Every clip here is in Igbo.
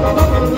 ¡Gracias!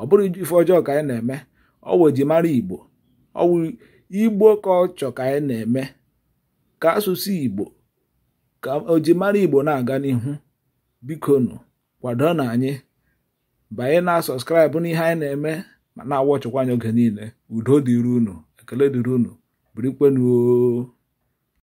ọ bụrụ ife ọjọọ ka anyị na-eme ọ ji mara igbo ọwụ igbo ka ọ ka anyị na-eme ka asụsụ igbo ka mara igbo na-aga n'ihu bikonu kwado na anyị banye na sọskraịbụ n'ihe anyị na-eme ma na ọchọkwa anyị oge niile udo dịrị unu ekele dịrị unu